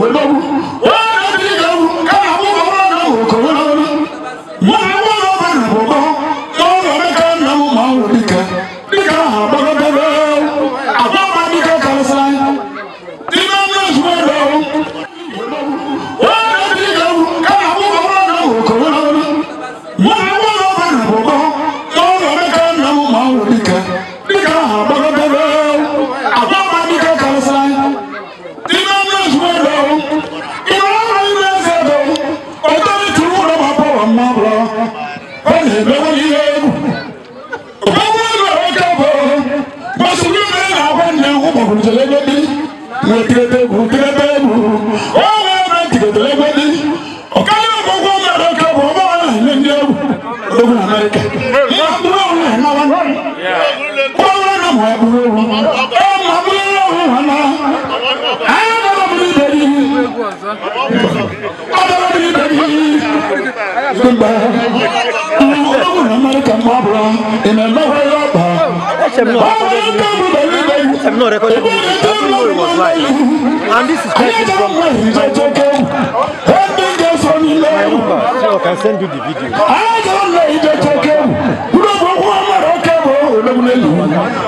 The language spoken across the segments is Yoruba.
wẹ̀ kùtùlẹ́gbẹ́dì wọ́n tìrẹ́tẹ́ kùtùlẹ́gbẹ́ wọ́n wọ́n tìrẹ́tẹ́lẹ́gbẹ́dì ọ̀kálẹ́ ọ̀gbọ́gbọ́ mẹ́rin ọ̀kẹ́ ọ̀gbọ́n bá wọn ní ndí ẹ̀wù lókun amẹ́ríkà ní àbúrò ọ̀hún ẹ̀ náà wọn kọ́ wọn náà mọ̀ àbúrò ọ̀hún ẹ̀ mọ̀ àbúrò ọ̀hún wọn náà ẹ̀ náà mọ̀ àbúrò ìdẹ́rì ọ̀dọ́rọ̀ ìdẹ́rì gbígbà ọ̀gbọ́n amẹ́ríkà mọ̀ àbúrò ìmẹ̀ mẹ́wàá yọ̀ I'm not recording this. I don't know it was live. And this is taken from my number. So I can send you the video. I don't know it.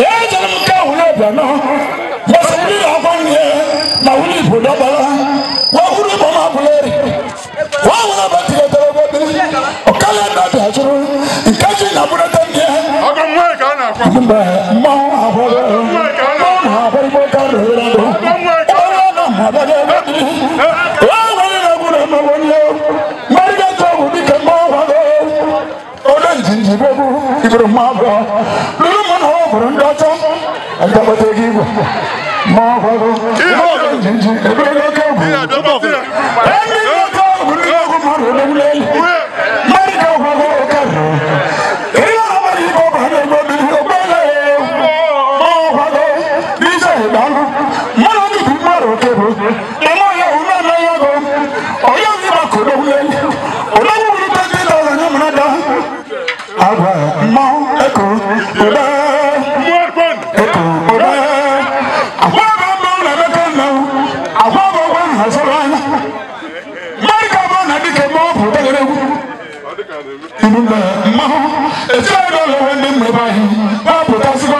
Ibo. Ibo. Ibo. Ibo. Ibo. na dịka eme ọ bụ obere egwu mgbe mmanwụ etu anyị ụlọ nwere ndị mmebe anyị gbapụtasịkwa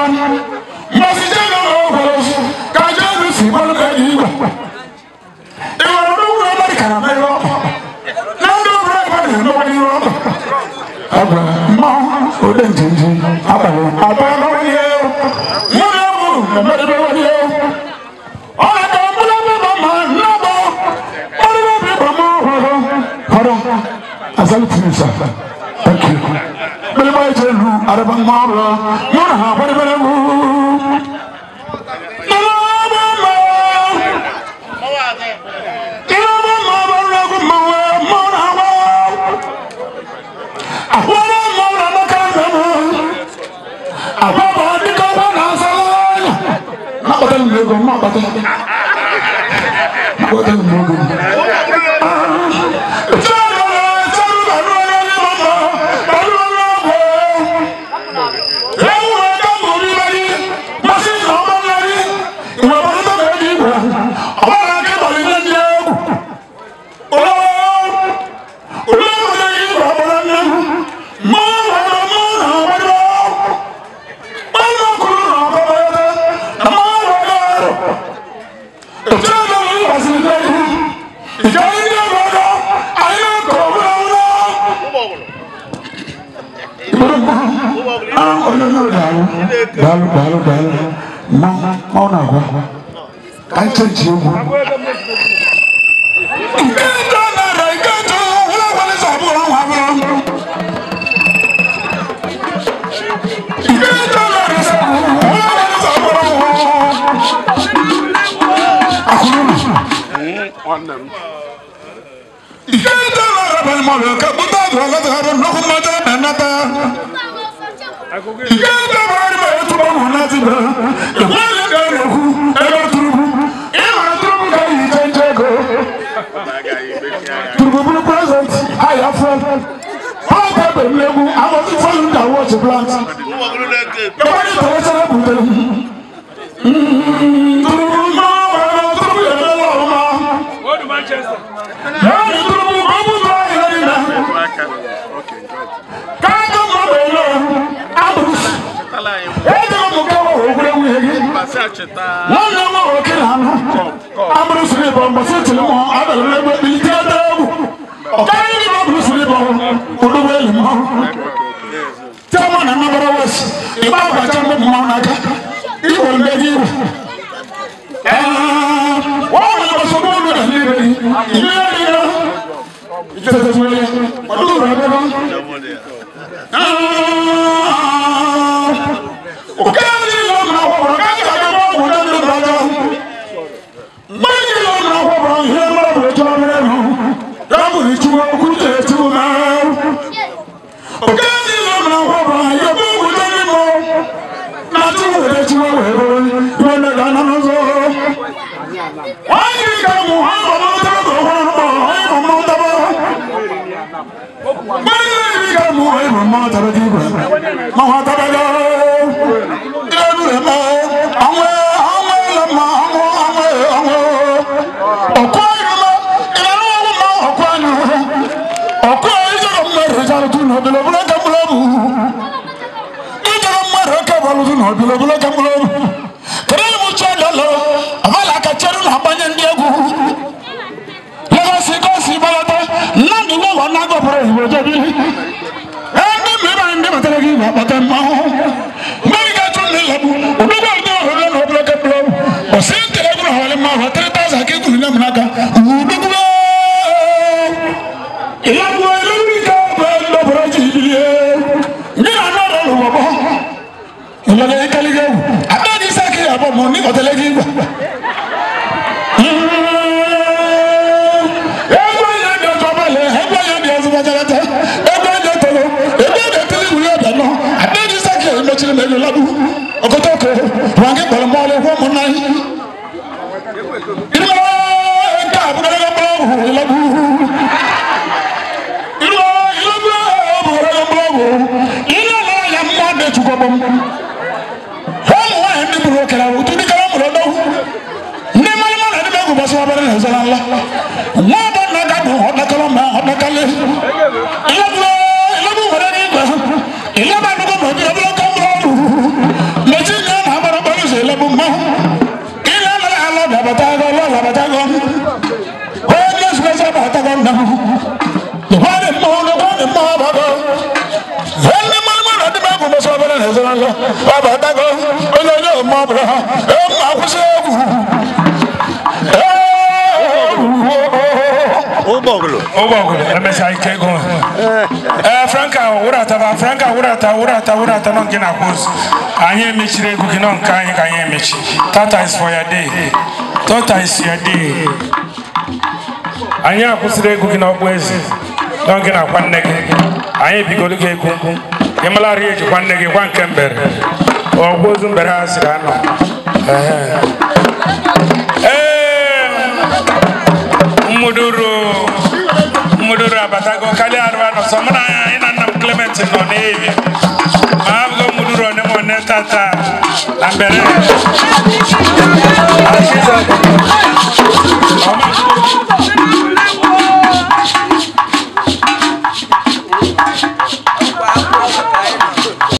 mmasị jee na ụlọ gwara ozu ka jeenu si gbalụ ka eji igwe ị nwere n'ugwu ebe dị ka na mmeri ọkpa na ndị obere ebe na-emekwa n'ihu ọkpa mmanwụ ode njenje hu arabang mabla murha barbara hu Makotan lugo, makotan. Makotan lugo. daalu daalu daalu ma ma na ba an canji mu on them. I'm mo present i have friend how ba be lebu i want to follow that watch plant lọ́nà wọn ò kí lànà amúlù sùn ìbọn bọ̀sẹ̀ tìlú mọ́ abẹ́lẹ́ lẹ́gbẹ́ bíi tí a dẹ́ wù ọ̀ká yìí ni wọ́n bùrù sùn ìbọn olúwẹ̀ lè mọ́ tí a mọ̀ nà má bọ̀rọ̀ wọ̀ sí ìbá àbàjá ń bọ̀ mọ́ náà ká ìwọ̀n bẹ́ẹ̀ yìí wọ́n wọ́n lọ sọ fún mi rẹ̀ ní ìrẹ̀ yìí ìrẹ̀ yìí máa tàbí ju rẹ̀ máa tàbí lọ. Ilé-ìlú rẹ̀ mọ́ àwọn àwọn ẹlẹ́mọ̀ àwọn àwọn àwọn ọ̀kọ́ ìrọ̀lá ìlànà wọn máa ọ̀kọ́ àná. Ọ̀kọ́ ìjọba mẹ́rin ìjọba tún nà bìlọ̀ bìlọ̀ kẹ́mbìlọ́mù. Ìjọba mẹ́rin kẹ́bọ̀lù tún nà bìlọ̀ bìlọ̀ kẹ́mbìlọ́mù. Kẹ́rẹ́ ìmú tí ó lọ́lọ́ àbálà kẹ́kẹ́rù nà bányẹ́ ndí egwu. Lọ́wọ́ sí kọ́ọ̀sì ìbálọ́tọ̀ náà nínú ọ̀nà àgọ́ what ogoto ko wange bolo mole wo monai labatagom holy special labatagom na the one Eh oh, oh. Franka urata Franka urata urata urata non kina Anye mechire gu kinon kanye kanye Tata is for your day. tọta isiadi ya dị anyị akwụsịrị egwu gị n'ọkpụ eze n'oge na-akwa nne gị anyị ebigoro gị egwu ị malarị ejikwa nne gị gwa nke mbere ọgwụ ozu mbere ha siri anọ ee mmuduru mmuduru abatago karịa arụ anọ sọ mụ na anyị na nna Clement nọ n'ebi ma abụgo mmuduru one m one tata na mbere